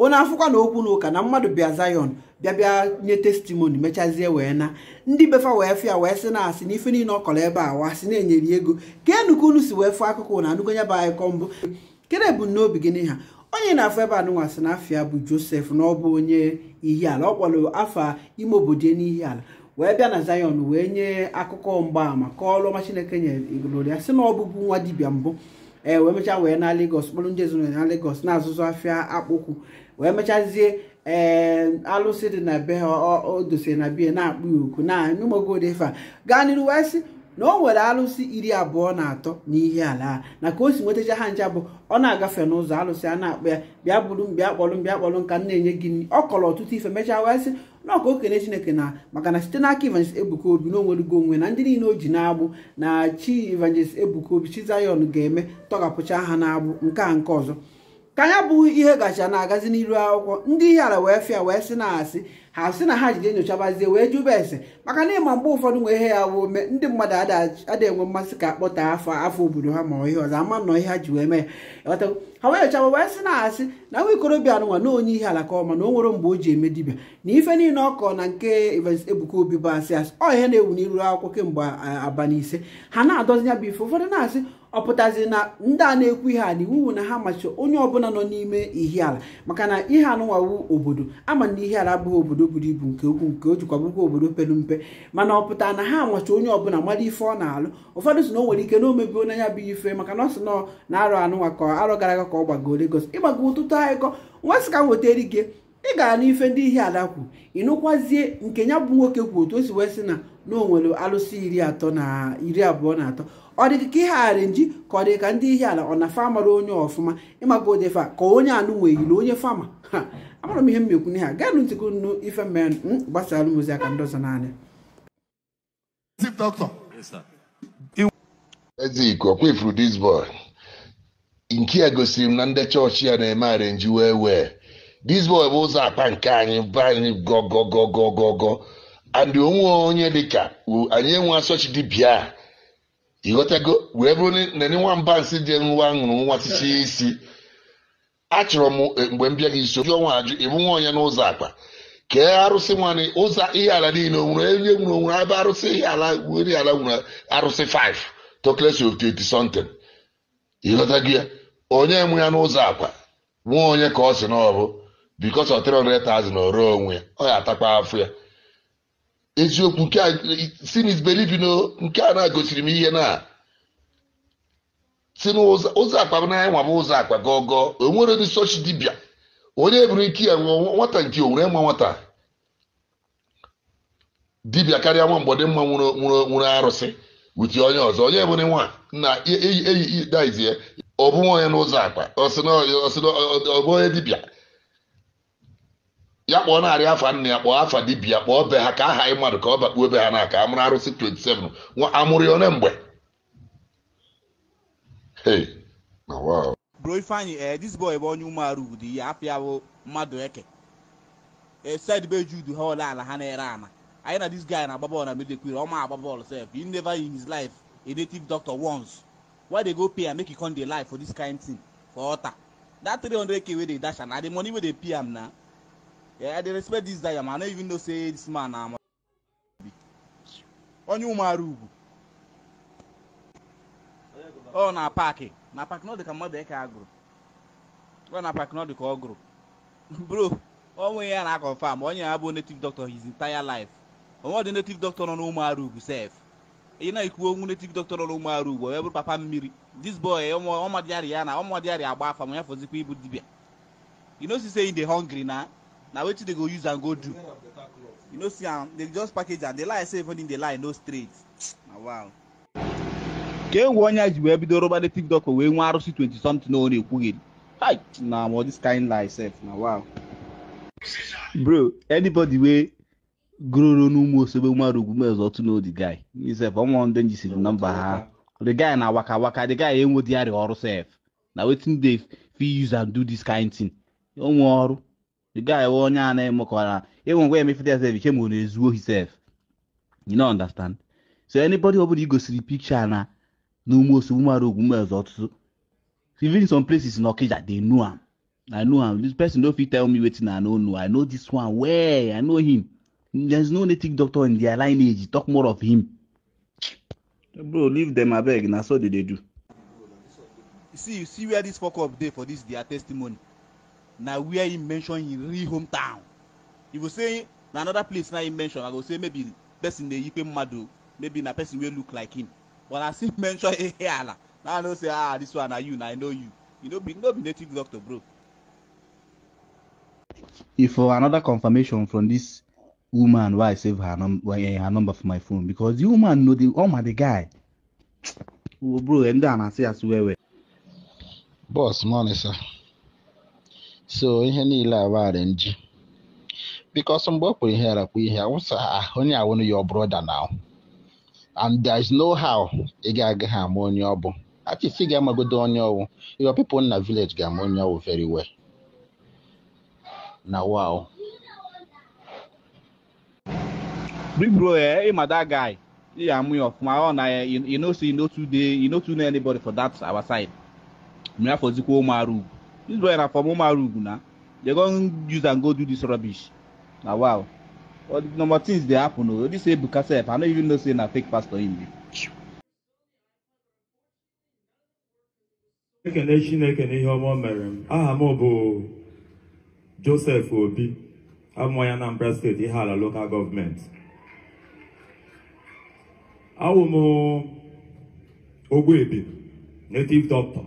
onye afụkwa na okwu na ụka na mmadụ bịa zayon bịa bịa nye testimoni mechazie wee na ndị befa wee fịa wee sị na asị na ife niile ọ kọrọ ebe a wa na-enyeri ego ka enuka unu si wee fụọ akụkụ na anụgo ya bụ akụkọ mbụ kedu ebumnobi gị n'ihe onye na-afụ ebe anụnwa sị na bụ Josef na ọ bụ onye Ihiala ọ kpọrọ afọ ime obodo n'ihi ala wee bịa na zayon wee nye akụkọ mgbaama kọọlụ ọma Chineke nyere igoloria sị na ọ bụbu nwa dibịa mbụ ee eh, wee mecha wee na legos kpọrọ ndị ezinụlọ na legos na-azụzụ afịa akpụkwụ wee mechazie ee eh, alụsị dị na be ha o dosiri na biya na-akpụ ya oku na n'ụmụgodefa gaa n'iru wee sị na o nwere alụsị iri abụọ na atọ n'ihe ala na ka o si nwetacha ha ncha bụ ọ na-agafe n'ụzọ alụsị a na akpụ ya bịa bụrụ m bịa kpọrọ m bịa kpọrọ m ka m na-enye gị ọ kọrọ ọtụtụ ife mechaa wee sị nọọ ka okene chineke na maka na site n'aka evangelist ebuka obi na onwe na ndị niile o ji na-agbụ na chi evangelist ebuka obi chi zayon ga-eme tọghapụcha ha na-agbụ nke a nke ọzọ ka ya bụ ihe gacha na-agazi n'iru akwụkwọ ndị ihe ala wee fịa wee sị na-asị ha sị na ha jide nyochabazie wee jụba ese maka na ịma mgbe ụfọdụ nwee ihe ya wee ndị mmadụ ada enwe mmasị ka akpọta afọ afọ obodo ha ma ihe ọzọ ama nọ ihe ha ji wee mee ya ha wee nyochaba wee sị na-asị na nwa ikorobịa nwa na onye ihe ala ka ọma na o nwere mgbe o ji eme dibịa na ife niile ọ na nke ebuka obi bụ asị asị ọ ihe na-ewu n'iru akwụkwọ kemgbe abalị ise ha na-adozi ya bụ ife ụfọdụ na-asị ọ pụtazi na ndị a na-ekwu ihe a na wu na ha machi onye ọbụla nọ n'ime ihiala maka na ihe anụwawu obodo ama na ihe ala abụghị obodo buru ibu nke ukwu nke o jikwa bụkwa obodo pere mpe mana ọ pụtara na ha amachi onye ọbụla mara ife ọ na-alụ ụfọdụ sị na o nwere ike na omebi onye ya bụ ife maka na ọsị nọ na arụ anụnwa ka arụ gara aga ka ọ gbago Lagos ịgbago ụtụtụ anyịkọ nwa sị ka wetara ike ị gara n'ife ndị ihiala kwu ịnụkwazie nke ya bụ nwoke kwu otu o si wee sị na na onwere alụsị iri atọ na iri abụọ na atọ ọ dịka ka ihe nji ka ọ dị ka ndị ihe ala ọ na fa mara onye ọfụma ịmaka fa ka onye anụ wee yiri onye fama ha amara m ihe m mmekwu na ha gaa nụ ntịkụ nnu ife mmerụ gbasara alụmozi aka ndọzọ naanị Ezike ọkwa kwefuru dis boy nke a gosiri m na ndị chọọchị ya na-eme nji wee wee dis boy bụ ụzọ akpa nke anyị be anyị gọgọgọgọgọ and onwe onye dị dịka anyị enwe asọchi dị bịa. ịghọtago wee bụrụ na nwa mba nsị dị nwa ṅụrụ nwa tichie isi achọrọ m e, mgbe m gị iso ji ọnwa ajụ ịbụ nwa onye n'ụzọ akpa kee arụsị nwanne ụzọ ihe ala niile onwere onye nwere onwere ebe arụsị ihe ala nwere ala nwere arụsị 5 toklesi of 30 something ịghọtago ya onye nwe ya n'ụzọ akpa nwa onye ka ọ si n'ọbụ bikos ọ 300,000 ọrụ onwe ya ọ ya atakwa afọ ya eziokwu nke sin is nke a na-agosiri m ihe na si n'ụzọ akpa naya nwa bụ ụzọ akpa gogo onwere dị sochi dibịa onye eburu ike ya nwụọ nwata nke owere nwa nwata dibịa karịa nwa mgbọdị mma nwụrụ arụsị wuti onye ọzọ onye ebere nwa na eyi eyi daizie ọ bụghị onye n'ụzọ akpa ọ bụ onye dibịa ya kpọọ narị afa nna ya kpọọ afa dibia kpọọ be ha ka aha anyị mmadụ ka ọ bakpuo be ha na aka amụrụ arụsị 27 nwa amụrụ ya one mgbe bro ifeanyị ee eh, dis boy bụ onye umearụ udu ya apịa bụ mmadụ eke esid eh, be judu ha ole ala ha na-ere ana anyị na dis guy na-agba bọọlụ na medekwiri ọma agba bọọlụ sef he never in his life a native doctor once why they go pay am make e come dey lie for this kind thing for ọta that 300k wey dey dash am na the money wey dey pay am na Yeah, I respect this guy, man. I don't even know say this man um, oh, na onye ụmụara ugwu ọ na paakị na paakị na ọ dị ka mmadụ eke agụrụ ọ na paakị na ọ dị ka ọ gụrụ bro onwe ya na akọfam onye ya bụ native doctor his entire life onwe ọdị native doctor nọ n'ụmụara ugwu sef ị na-ekwu onwu native doctor nọ n'ụmụara ugwu onye bụrụ papa mmiri this boy ọmadịarị ya na ọmadịarị agba afa ma ya fọzikwa ịbụ you know say say dey hungry na na wetin dey go use am go do you no see am um, dey just package am dey lie say everything dey lie no straight na wow. ka e nwe onye ji wee bido rụba native doctor wee nwee arụsị 20 something o na-ekwugheri hi na ma this kind lie sef na wow. bro anybody wey gụrụrụ n'ụmụ osogbe nwere ugwu mezi otu na odi guy isef ọnwa ndị nji siri na mba ha the guy na waka waka the guy enwe diary ọrụ sef na wetin dey fit use and do this kind thing onwe ọrụ the guy wɔ onye a na-eme kọwara ịnwe ngwa emefete sef iche ma ọ na-ezu ohi you no understand so anybody ọ bụla igosiri picture, na n'ume osogbu mara ogwu mmezu ọtụtụ even some places in okija they know am i know am this person no fit tell me wetin i no know i know this one well i know him there's no native doctor in their lineage talk more of him bro leave them abeg na so they dey do. you see you see where this fok up dey for this their testimony na where he mention him real hometown if you say na another place na him mention i go say maybe person dey yipe mmadụ maybe na person wey look like him but as he mention eheala Now i know say ah this one na you na i know you you no be no be native doctor bro. if for uh, another confirmation from this woman why i save her, num eh, her number for my phone because the woman know the woman oh um, the guy oh, bro and then i say as well well. boss morning sir. so ihe niile agbarị nji because mgbe o kwuru ihe arakwu ihe awụsa onye awụnụ ya brother na and there is no how ị ga-agaghị ama onye ọ bụ achịsi ga-amagodo onye ọwụ your people na village ga-ama onye ọwụ very well na wow big bro eh ịma that guy ị ga-amụ ya ọfụma ọ na ya you know say you no too dey you no too anybody for that our side mgbe afọ zikwa ụmụ arụ dis boy na from umarugu na dem don use am go do dis rubbish na wow all the number things dey happen o this ebuka sef i no even know say na fake pastor in be. ekele chineke na ihe ọma mere m aha m bụ joseph obi amụọ ya anambra steeti ihe ala lokal gọọmenti awụ m ebi native doctor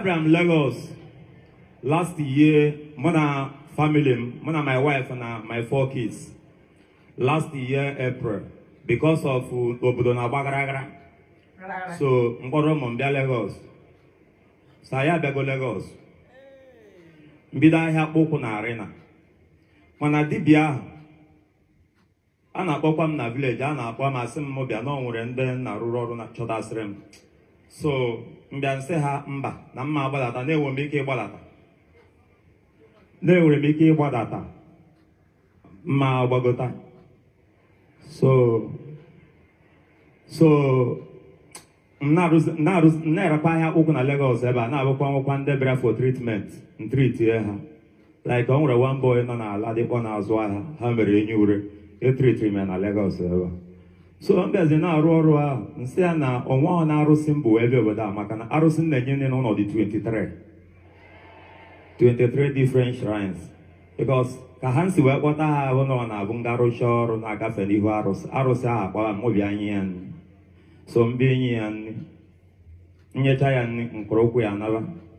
Abraham Lagos last year, more na family, more my wife and uh, my four kids. Last year, April, because of uh, obodo na agbagharaghara. So mkpọrọ ụmụ m bịa Lagos. So ya Lagos. Mbido ahịa kpụkwụ na arena. Mana dibia ahụ a na-akpọkwa m na village, a na-akpọ m asị m bịa na nwere ndị nna rụrụ ọrụ na chọtasịrị m so mbịa ha mba na mma gbadata na-enwere m ike ịgbadata na-enwere m ike ịgbadata mma gbagota so so na-erekwa ahịa akwụkwọ na Lagos ebe a na-abụkwa nwụkwa ndebere for treatment ntritie ha like o nwere one boy nọ n'ala dịkpọ n'azụ ahịa ha mere enyi ure etritiri na Lagos ebe solombiaze na-arụ ọrụ ahụ nsị ya na ọnwa ọ na-arụsị mbụ ebe obodo a maka na arụsị na-enye nne n'ọnọdụ 23 23 different shrines because ka ha si wee kpọta ha ahụ na ọ na-abụ nga arụcha ọrụ na-agafe n'ihu arụsị arụsị ahụ akpọla mobi anyị ya nri so mbe enyi ya nri nyecha ya nri mkpụrụ ya naba